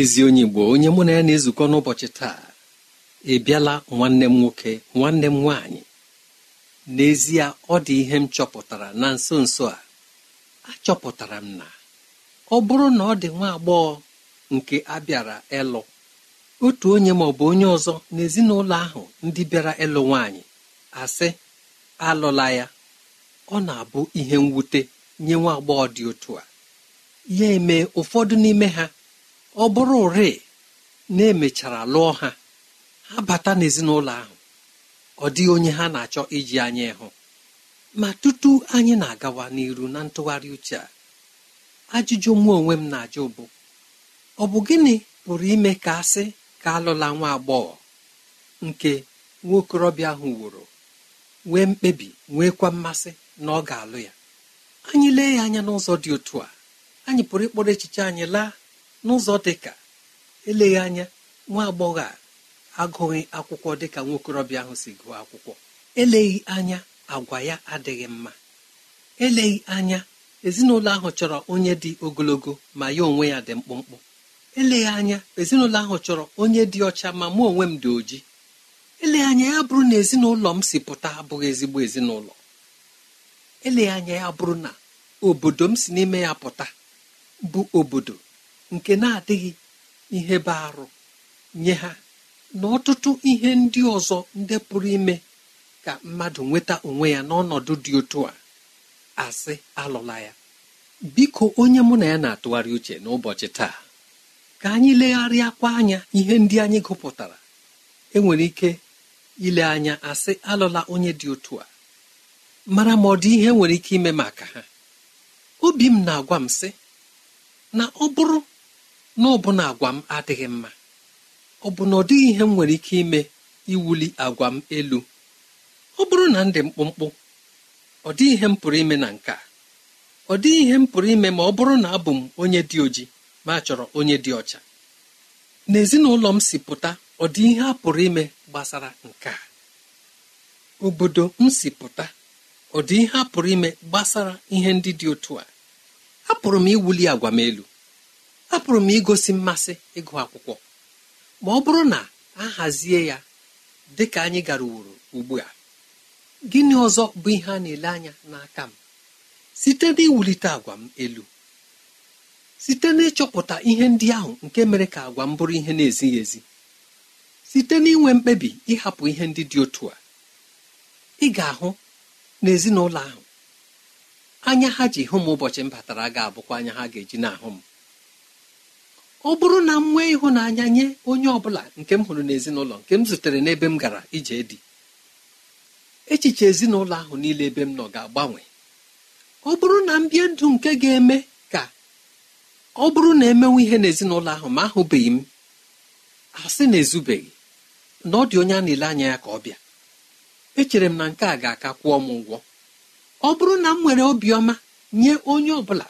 ezi onye Igbo onye mụ na ya na-ezukọ n'ụbọchị taa ị bịala nwanne m nwoke nwanne m nwaanyị n'ezie ọ dị ihe m chọpụtara na nso nso a achọpụtara m na ọ bụrụ na ọ dị nwa agbọghọ nke abịara ịlụ otu onye ma ọ bụ onye ọzọ n'ezinụlọ ahụ ndị bịara ịlụ nwaanyị asị alụla ya ọ na-abụ ihe mwute nye nwa agbọghọ dị otu a ya eme ụfọdụ n'ime ha ọ bụrụ ụrị na emechara lụọ ha ha bata n'ezinụlọ ahụ ọ dịghị onye ha na-achọ iji anya ịhụ ma tutu anyị na-agawa n'iru na ntụgharị uche a ajụjụ mụ onwe m na-ajụ bụ ọ bụ gịnị pụrụ ime ka asị ka alụla nwa agbọghọ nke nwaokorobịa ahụ wụrụ nwee mkpebi nweekwa mmasị na ọ ga-alụ ya anyị lee ya anya n'ụzọ dị otu a anyị pụrụ ịkpọrọ echiche anyị laa n'ụzọ dịka eleghị anya nwa agbọghọ a agụghị akwụkwọ dịka nwokorobịa ahụ si gụọ akwụkwọ eleghị anya agwa ya adịghị mma eleghị anya ezinụlọ ahụ chọrọ onye dị ogologo ma ya onwe ya dị mkpụmkpụ eleghị anya ezinụlọ ahụ chọrọ onye dị ọcha ma mụ onwe m dị oji eleghị anya ya bụrụ na ezinụlọ m si pụta abụghị ezigbo ezinụlọ eleghị anya ya bụrụ na obodo m si n'ime ya pụta bụ obodo nke na-adịghị ihe bụ arụ nye ha na ọtụtụ ihe ndị ọzọ ndị pụrụ ime ka mmadụ nweta onwe ya n'ọnọdụ dị otu a asị alụla ya biko onye mụ na ya na-atụgharị uche n'ụbọchị taa ka anyị legharịa legharịakwa anya ihe ndị anyị gụpụtara enwere ike ile anya asị alụla onye dị otu a mara ma ọ dị ihe nwere ike ime maka ha obi m na-agwa m sị na ọ bụrụ na ọbụna agwa m adịghị mma ọ bụ na ọ dịghị ihe m nwere ike ime iwuli agwa m elu ọ bụrụ na m dị mkpụmkpụ ọ dịghị ihe m pụrụ ime na nke a ọ dịghị ihe m pụrụ ime ma ọ bụrụ na abụ m onye dị oji ma a chọrọ onye dị ọcha n'ezinụlọ m si pụta ọ dị ihe a pụrụ ime gbasara nke a obodo m si pụta ọ dị ihe a pụrụ ime gbasara ihe ndị dị otu a apụrụ m iwuli agwa m elu apụrụ m igosi mmasị ịgụ akwụkwọ ma ọ bụrụ na a hazie ya dị ka anyị gara uworo ugbu a gịnị ọzọ bụ ihe a na-ele anya n'aka m site n'iwulite agwa m elu site n'ịchọpụta ihe ndị ahụ nke mere ka agwa m bụrụ ihe na-ezighị ezi site n'inwe mkpebi ịhapụ ihe ndị dị otu a ị ga-ahụ n'ezinụlọ ahụ anya ha ji hụ m ụbọchị m batara ga-abụkwa anya ha ga-eji na-ahụ m ọ bụrụ na m nwee ịhụnanya nye onye ọ bụla nke m hụrụ n'ezinụlọ nke m zutere n'ebe m gara ije dị echiche ezinụlọ ahụ niile ebe m nọ ga-agbanwe ọ bụrụ na m bie ndụ nke ga-eme ka ọ bụrụ na emenwe ihe n'ezinụlọ ahụ ma ahụbeghị m asị na ezubeghị na ọ dị onye a na-ele anya ya ka ọ bịa echere m na nke a ga-aka kwụọ m ụgwọ ọ bụrụ na m nwere obiọma nye onye ọ bụla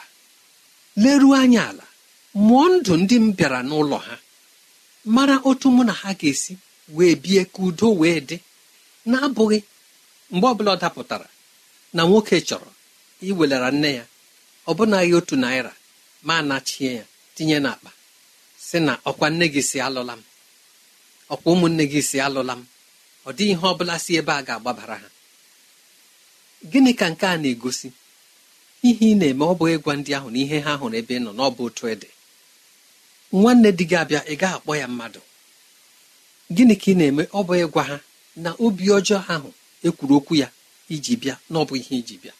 leruo anya ala mụọ ndụ ndị m bịara n'ụlọ ha mara otu mụ na ha ga-esi wee bie ka udo wee dị na-abụghị mgbe ọbụla ọ dapụtara na nwoke chọrọ iwelara nne ya ọbụnaghị otu naira ma anachie ya tinye n'akpa si na ọkwa nne gị si alụla m ọkwa ụmụnne gị si alụla m ọ dịghị ihe ọ bụla si ebe a ga-agbabara ha gịnị ka nke a na-egosi ihe ị na-eme ọ bụghị ịgwa ndị ahụ na ihe ha hụrụ ebe ị nọ n'ọbụ otu ịdị nwanne di gị abịa ị gaghị akpọ ya mmadụ gịnị ka ị na-eme ọ bụ ịgwa ha na obi ọjọọ ahụ ekwuru okwu ya iji bịa na ọ bụ ihe iji bịa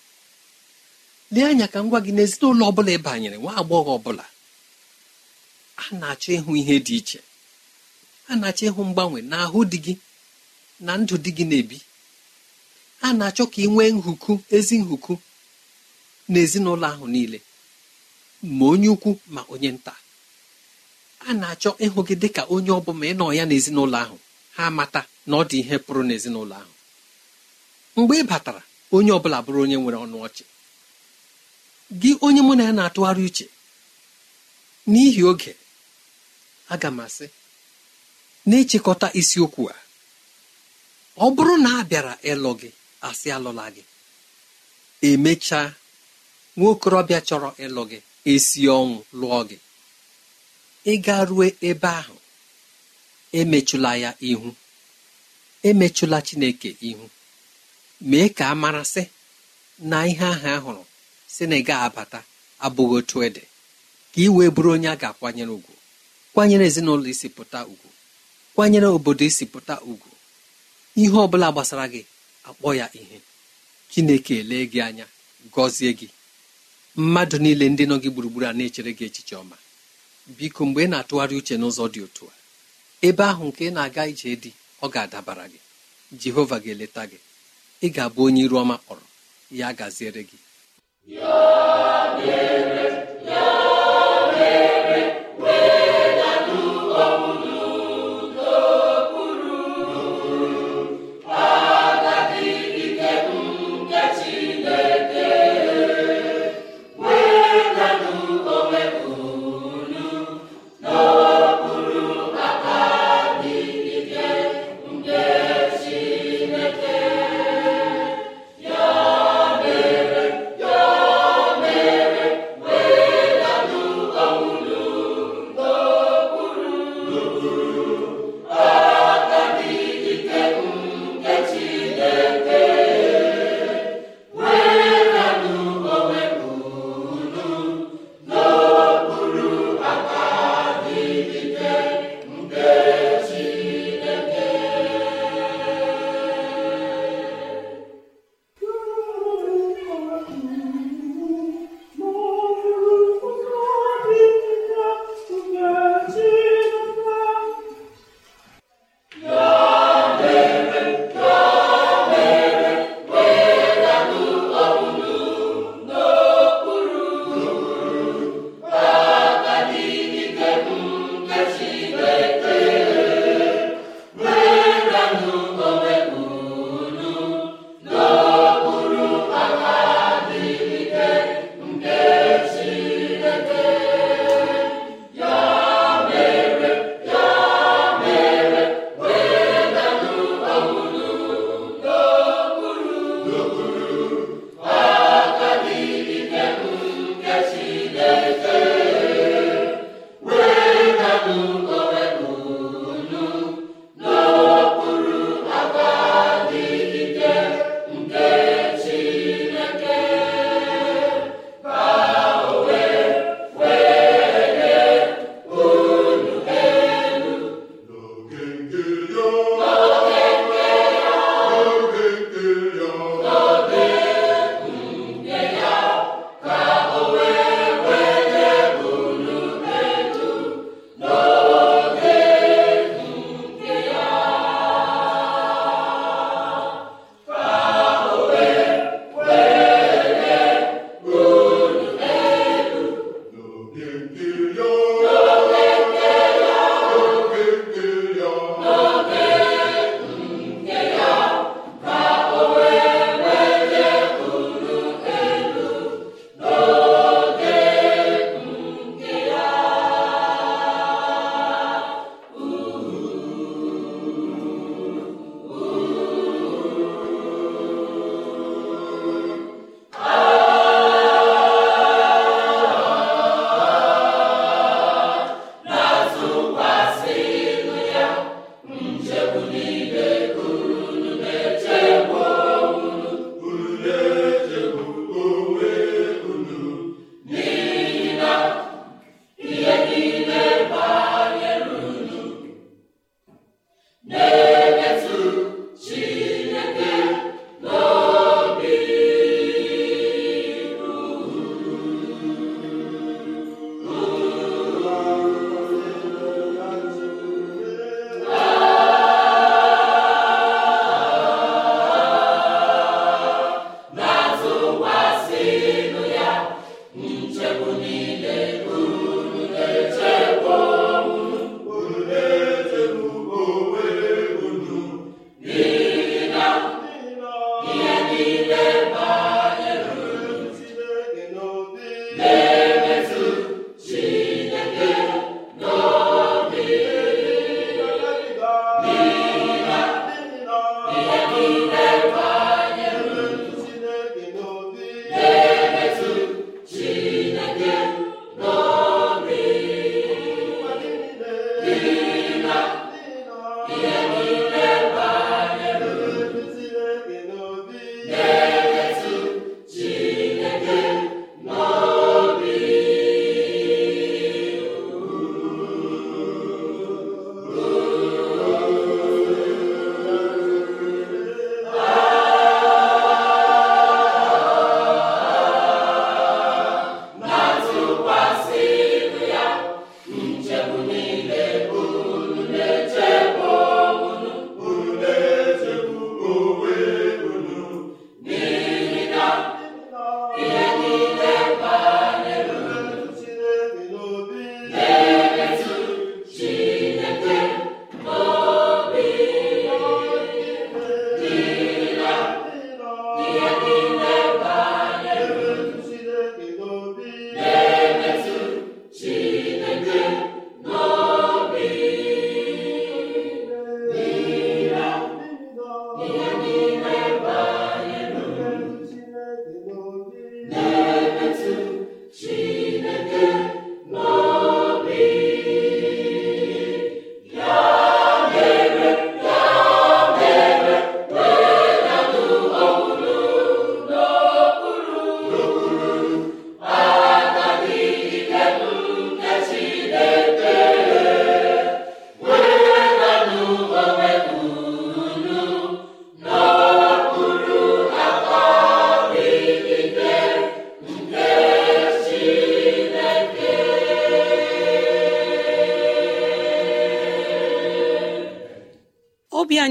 lee anya ka m gwa gị n'ezinụlọ ọ bụla ị banyere nwa agbọghọ ọbụla a na-achọ ịhụ ihe dị iche a na-achọ ịhụ mgbanwe n'ahụ di gị na ndụ di gị na-ebi a na-achọ ka ị nwee nhuku ezi nhuku n'ezinụlọ ahụ niile ma onye ukwu ma onye nta a na-achọ ịhụ gị dị ka onye ọbụla ị nọ ya n'ezinụlọ ahụ ha mata na ọ dị ihe pụrụ n'ezinụlọ ahụ mgbe ị batara onye ọbụla bụrụ onye nwere ọnụ ọchị gị onye mụ na ya na-atụgharị uche n'ihi oge aga m asị na-echekọta isiokwu a ọ bụrụ na a bịara ịlụ gị asị alụla gị emechaa nwa okorobịa chọrọ ịlụ gị esi ọnwụ lụọ gị Ị ịga rue ebe ahụ emechụla ya ihu emechụla chineke ihu mee ka a marasị na ihe ahụ a hụrụ si na ị abata abụghị otu ede ka ị wee bụrụ onye a ga-akwanyere ugwu kwanyere ezinụlọ isi pụta ugwu kwanyere obodo isi pụta ugwu ihe ọ bụla gbasara gị akpọ ya ihe chineke elee gị anya gọzie gị mmadụ niile ndị nọ gị gburugburu a na-echere gị echiche ọma biko mgbe ị na-atụgharị uche n'ụzọ dị otu a ebe ahụ nke ị na-aga ije dị ọ ga-adabara gị jehova ga-eleta gị ị ga-abụ onye iru ọma kpọrọ ya gaziere gị ihe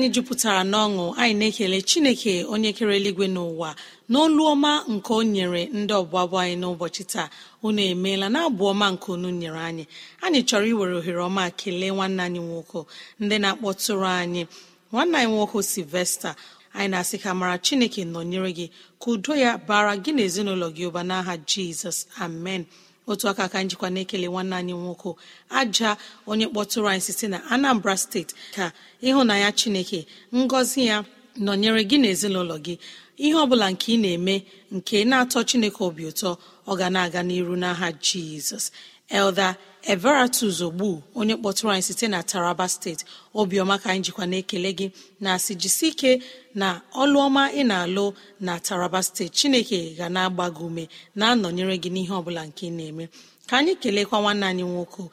anyị jupụtara n'ọṅụ anyị na-ekele chineke onye kere eluigwe n'ụwa n'olu ọma nke o nyere ndị ọgbabụ anyị n'ụbọchị taa unu emeela na abụ ọma nke unu nyere anyị anyị chọrọ iwere ohere ọma kelee nwanne anyị nwoke ndị na-akpọtụrụ anyị nwanne anyị nwoke silvesta anyị na-asị ka mara chineke nọnyere gị ka udo ya bara gị na ezinụlọ gị ụba n'aha jizọs amen otu aka aka njikwa na-ekele nwanne anyị nwoke aja onye kpọtụrụ anyị site na anambra steeti ka ịhụnanya chineke ngọzi ya nọnyere gị na ezinụlọ gị ihe ọ bụla nke ị na-eme nke na-atọ chineke obi ụtọ ọ ga na-aga n'iru n'aha jizọs elda everatus ogbu onye kpọtụrụ anyị site na taraba steeti obiọma ka anyị jikwa na-ekele gị na asị jisi ike na ọlụọma ị na-alụ na taraba steeti chineke ga na-agba gị ume na-anọnyere gị n'ihe ọbụla nke ị na-eme ka anyị kelekwa nwanne anyị nwoke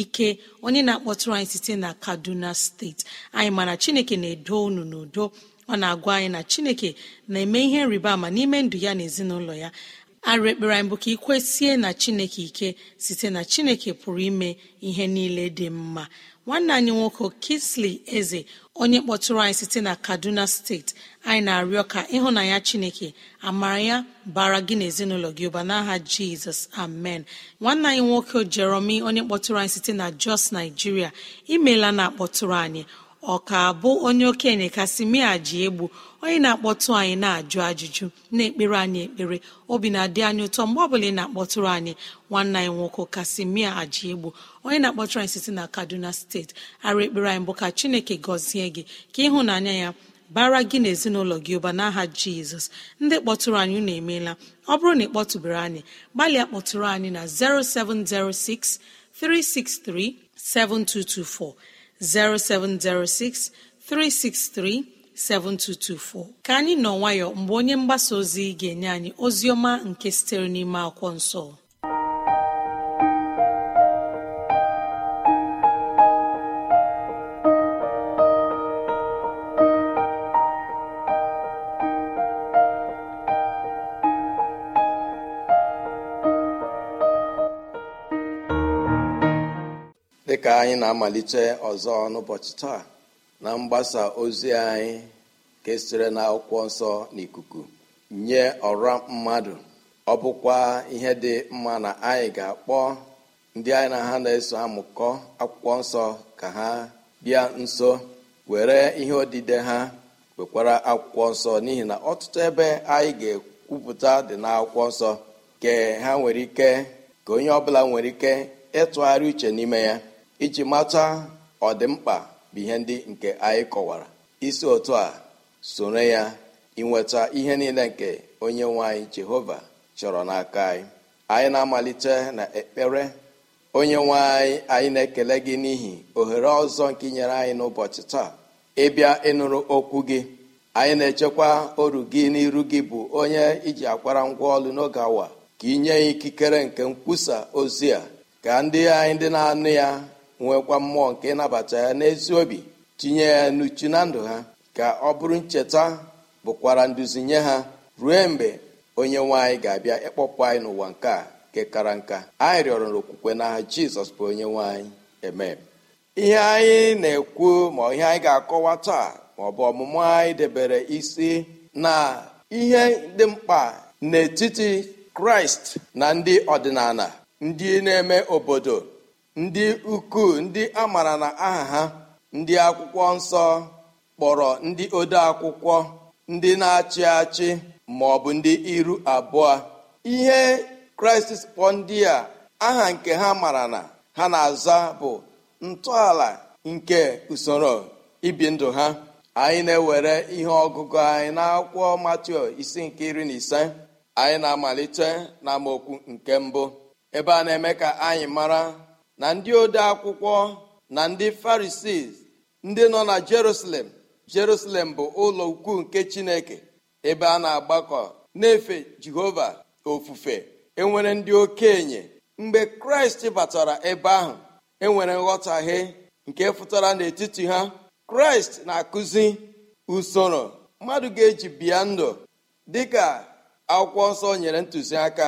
ike onye na-akpọtụrụ anyị site na kaduna steeti anyị mana chineke na-edo unu n'udo ọ na-agwa anyị na chineke na-eme ihe nrịba ama n'ime ndụ ya na ezinụlọ ya arụ ekpere anyị bụ ka ikwesie na chineke ike site na chineke pụrụ ime ihe niile dị mma nwanne anyị nwoke Kisli eze onye kpọtụrụ anyị site na kaduna steeti anyị na-arịọ ka ịhụnanya chineke amara ya bara gị na ezinụlọ gị ụba n'aha jizọs amen nwanne anyị nwoke jeromi onye kpọtụrụ anyị site na jos naijiria imeela na akpọtụrụ anyị Ọ ka bụ onye okenye kasimia ji egbu onye na-akpọtụ anyị na-ajụ ajụjụ na-ekpere anyị ekpere obi na-adị anyị ụtọ mgbe ọbụla ị na-akpọtụrụ anyị nwanne anyị nwoke kasimia aji egbu onye na-akpọtụrụ anyị site na kaduna steeti ara ekpere anyị bụ ka chineke gọzie gị ka ịhụnanya ya bara gị na ezinụlọ gị ụba n'aha jizọs ndị kpọtụrụ anyị unu emeela ọ bụrụ na ị kpọtụbere anyị gbalịa kpọtụrụ anyị na 0706 363 7224 0706 363 7224. ka anyị nọ nwayọ mgbe onye mgbasa ozi ga-enye anyị ozi ọma nke sitere n'ime akwụkwọ nsọ dịka anyị na-amalite ọzọ n'ụbọchị taa na mgbasa ozi anyị kesịrị na akwụkwọ nsọ n'ikuku nye ọra mmadụ ọ bụkwa ihe dị mma na anyị ga-akpọ ndị anyị na ha na-eso amụkọ akwụkwọ nsọ ka ha bịa nso were ihe odide ha wekwara akwụkwọ nsọ n'ihi na ọtụtụ ebe anyị ga-ekwupụta dị na akwụkwọ nsọ ha nwere ike ka onye ọbụla nwere ike ịtụgharị uche n'ime ya iji mata ọdịmkpa bụ ihe ndị nke anyị kọwara isi otu a sonye ya inweta ihe niile nke onye nwe anyị jehova chọrọ n'aka anyị anyị na-amalite na ekpere onye nwe anyị anyị na-ekele gị n'ihi ohere ọzọ nke nyere anyị n'ụbọchị taa ịbịa ịnụrụ okwu gị anyị na-echekwa oru gị n'iru gị bụ onye iji akwara ngwa ọlụ n'oge awa ka inye ya ikikere nke nkwusa ozi a ka ndị anyị ndị na-anụ ya nwekwa mmụọ nke ịnabata ya n'ezi obi tinye ya n'uchu na ndụ ha ka ọ bụrụ ncheta bụkwara nduzi nye ha ruo mgbe onye nwanyị ga-abịa ịkpọpụ anyị n'ụwa nke a nke kara nka anyị rịọrọ na n'aha jizọs bụ onye nwanyị eme ihe anyị na-ekwu ma ihe anyị ga-akọwa taa ma ọ bụ ọmụmụ anyị debere isi na ihe dị mkpa n'etiti kraịst na ndị ọdịnala ndị na-eme obodo ndị ukwu ndị a maara na aha ha ndị akwụkwọ nsọ kpọrọ ndị ode akwụkwọ ndị na-achị achị ma ọ bụ ndị iru abụọ ihe kraịst kpọ ndị a aha nke ha mara na ha na-aza bụ ntọala nke usoro ibi ndụ ha anyị na-ewere ihe ọgụgụ anyị n'akwụkwọ matio isi nke iri na ise anyị na-amalite na nke mbụ ebe a na-eme ka anyị mara na ndị ode akwụkwọ na ndị farisii ndị nọ na jerusalem jerusalem bụ ụlọ ukwu nke chineke ebe a na-agbakọ na-efe jehova ofufe enwere ndị okenye mgbe kraịst batara ebe ahụ enwere nghọtahie nke fụtara n'etiti ha kraịst na-akụzi usoro mmadụ ga-eji bịa ndụ dịka akwụkwọ nsọ nyere ntụziaka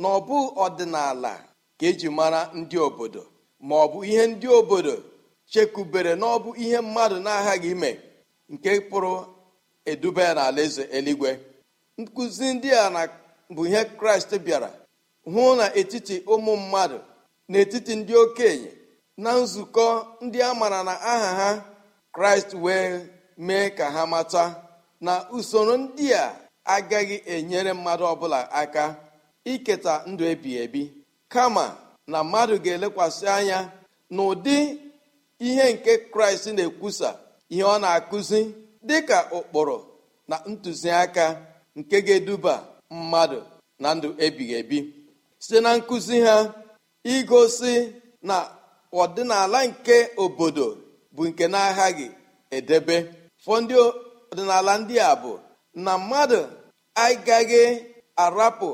na ọ ọdịnala ka eji mara ndị obodo ma ọ bụ ihe ndị obodo chekubere na ọ bụ ihe mmadụ na-aghaghị ime nke pụrụ eduba ya n'ala eze eluigwe nkụzi ndị a bụ ihe kraịst bịara hụ na etiti ụmụ mmadụ n'etiti ndị okenye na nzukọ ndị a maara na aha ha kraịst wee mee ka ha mata na usoro ndị a agaghị enyere mmadụ ọbụla aka iketa ndụ ebi ebi kama na mmadụ ga-elekwasị anya na ụdị ihe nke kraịst na-ekwusa ihe ọ na-akụzi dịka ụkpụrụ na ntụziaka nke ga-eduba mmadụ na ndụ ebighị ebi site na nkụzi ha igosi na ọdịnala nke obodo bụ nke na-aghaghị edebe fọdụ ọdịnala ndị a bụ na mmadụ agaghị arapụ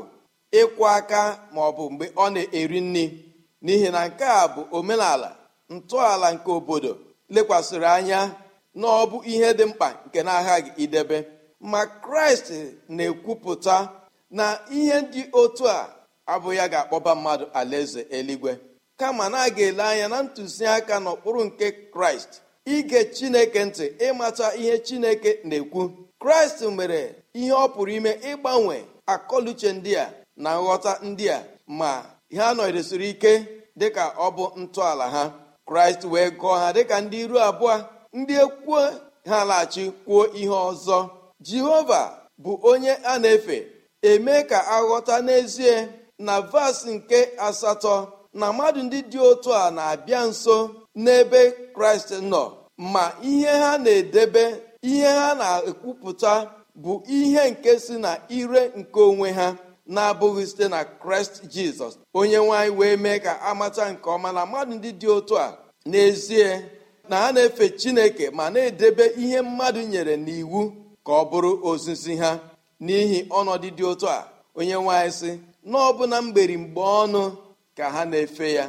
ịkwụ aka ma ọ bụ mgbe ọ na-eri nri n'ihi na nke a bụ omenala ntọala nke obodo lekwasịrị anya na ọ bụ ihe dị mkpa nke na-aghaghị idebe ma kraịst na-ekwupụta na ihe dị otu a abụ ya ga-akpọba mmadụ alaeze eluigwe kama na a ga-ele anya na ntụziaka n'okpuru nke kraịst ige chineke ntị ịmata ihe chineke na-ekwu kraịst mere ihe ọ pụrụ ime ịgbanwe akọluche ndị a na nghọta ndị a ma ha nọdesiri ike dịka ọ bụ ntọala ha kraịst wee gụọ ha dịka ndị iru abụọ ndị ekwuo ha laghachi kwuo ihe ọzọ jehova bụ onye a na-efe eme ka aghọta n'ezie na vas nke asatọ na mmadụ ndị dị otu a na-abịa nso n'ebe kraịst nọ ma ihe ha na-edebe ihe ha na-ekwupụta bụ ihe nke si na ire nke onwe ha na-abụghị site na kraịst jizọs onye nwanyị wee mee ka amata nke ọma na mmadụ ndị dị otu a n'ezie na ha na-efe chineke ma na-edebe ihe mmadụ nyere n'iwu ka ọ bụrụ ozizi ha n'ihi ọnọdụ dị otu a onye nwanyị sị na mgberi mgbe ọnụ ka ha na-efe ya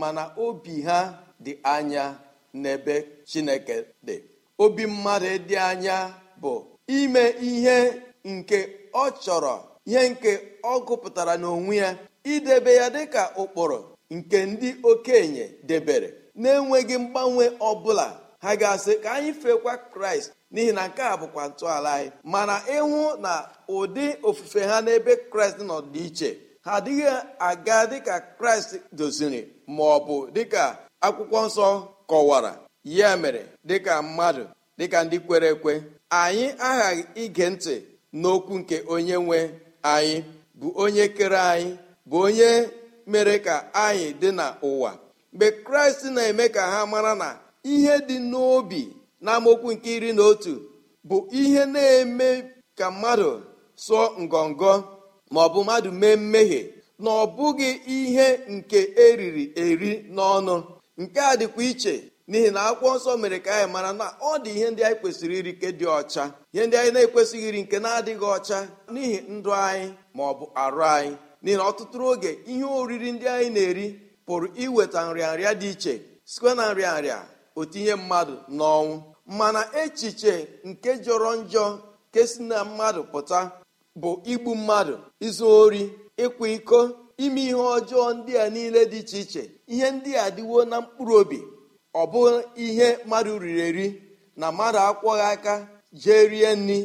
mana obi ha dị anya n'ebe chineke dị obi mmadụ dị anya bụ ime ihe nke ọ chọrọ ihe nke ọ gụpụtara n'onwe ya idebe ya dịka ụkpụrụ nke ndị okenye debere na-enweghị mgbanwe ọbụla ha ga-asị ka anyị feekwa kraịst n'ihi na nke a bụkwa ntọala anyị mana ịhụ na ụdị ofufe ha n'ebe kraịst nọ dị iche ha adịghị aga dịka kraịst doziri ma ọ bụ dịka akwụkwọ nsọ kọwara ya mere dịka mmadụ dịka ndị kwere ekwe anyị aghaghị ige ntị n'okwu nke onye nwe anyị bụ onye kere anyị bụ onye mere ka anyị dị n'ụwa mgbe kraịst na-eme ka ha mara na ihe dị n'obi amokwu nke iri na otu bụ ihe na-eme ka mmadụ sụọ ngọngọ ma ọ bụ mmadụ mee mmehie na ọ bụghị ihe nke eriri eri n'ọnụ nke a dịkwa iche n'ihi na akwụkwọ nsọ mere ka anyị mara na ọ dị ihe ndị anyị kwesịrị iri nke dị ọcha ihe ndị anyị na-ekwesịghị iri nke na-adịghị ọcha n'ihi ndụ anyị ma ọ bụ arụ anyị n'ihi na ọtụtụ oge ihe oriri ndị anyị na-eri pụrụ iweta nrịanrịa dị iche site na nrịanrịa otinye mmadụ n'ọnwụ mana echiche nke jọrọ njọ nke si na mmadụ pụta bụ igbu mmadụ izu ori ịkwa iko ime ihe ọjọọ ndị a niile dị iche iche ihe ndị a dịwo na mkpụrụ obi ọ bụ ihe mmadụ riri eri na mmadụ akwọghị aka jee rie nri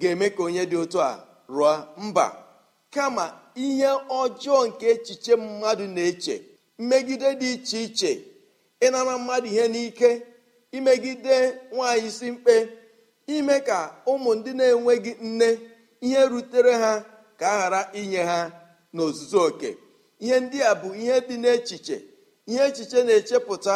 ga-eme ka onye dị otu a rụọ mba kama ihe ọjọọ nke echiche mmadụ na-eche mmegide dị iche iche ịnara mmadụ ihe n'ike imegide nwaanyị isi mkpe ime ka ụmụ ndị na-enweghị nne ihe rutere ha ka a ghara inye ha n'ozuzu oke ihe ndị a bụ ihe dị n'echiche ihe echiche na-echepụta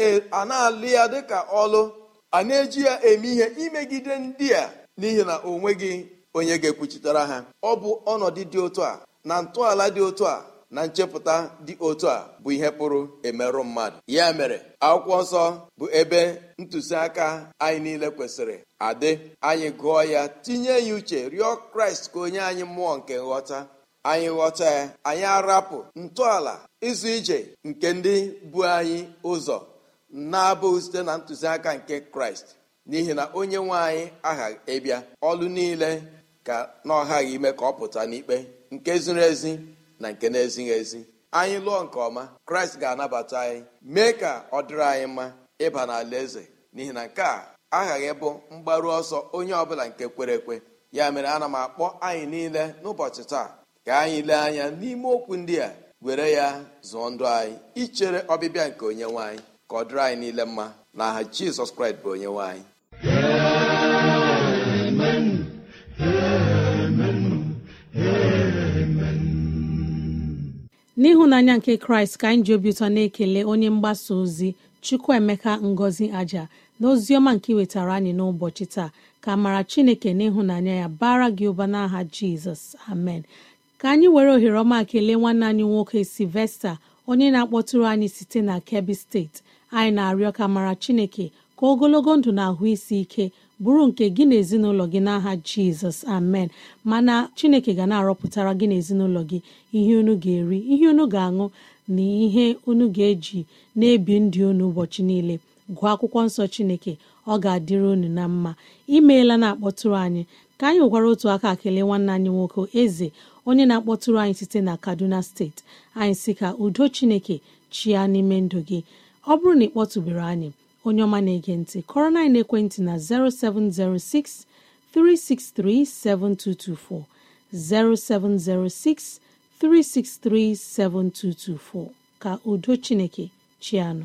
E, a na-alụ ya dịka ọlụ a na-eji ya eme ihe imegide ndị a n'ihi na o nweghị onye ga-ekwuchitere ha ọ bụ ọnọdụ dị otu a na ntọala dị otu a na nchepụta dị otu a bụ ihe pụrụ emerụ mmadụ ya mere akwụkwọ nsọ bụ ebe ntụziaka anyị niile kwesịrị adị anyị gụọ ya tinye ya uche rịọ kraịst ka onye anyị mmụọ nke nghọta anyị ghọta ya anyị arapụ ntọala ịzụ ije nke ndị bụ anyị ụzọ na-abụghị site na ntụziaka nke kraịst n'ihi na onye nwe anyị aghaghị ịbịa ọlụ niile ka na ọghaghị ime ka ọ pụta n'ikpe nke ziri ezi na nke na-ezighị ezi anyị lụọ nke ọma kraịst ga-anabata anyị mee ka ọ dịrị anyị mma ịba n'ala eze n'ihi na nke a aghaghị ịbụ mgbaru ọsọ onye ọbụla nke kwere ekwe ya mere ana m akpọ anyị niile n'ụbọchị taa ka anyị lee anya n'ime okwu ndị a were ya zụọ ndụ anyị ichere ọbịbịa nke onye nwe anyị ka ọ dịrị anyị niile mma aha jizọs kraịst bụ onye nwanyị anyị n'ịhụnanya nke kraịst ka anyị ji obi ụtọ na-ekele onye mgbasa ozi chukwuemeka ngozi aja na ozi ọma nke wetara anyị n'ụbọchị taa ka mara chineke n'ịhụnanya ya bara gị ụba n'aha jizọs amen ka anyị were ohere ọma kelee nwanne anyị nwoke silvesta onye na-akpọtụrụ anyị site na kebbi steeti anyị na-arịọ ka mara chineke ka ogologo ndụ na ahụ isi ike bụrụ nke gị na ezinụlọ gị n'aha jizọs amen mana chineke ga na-arọpụtara gị na ezinụlọ gị ihe unu ga-eri ihe unu ga-aṅụ na ihe unu ga-eji na-ebi ndị unu ụbọchị niile gụọ akwụkwọ nsọ chineke ọ ga-adịrị unu na mma imeela na-akpọtụrụ anyị ka anyị gwara otu aka kelee nwanne anyị nwoke eze onye na-akpọtụrụ anyị site na kaduna steeti anyị si ka udo chineke chịa n'ime ndụ gị ọ bụrụ na ị kpọtụbere anyị onye ọma na-ege ntị kọrọ na ekwentị na 0706 363 7224 0706 363 7224 ka udo Chineke chianu.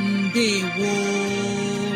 ndewo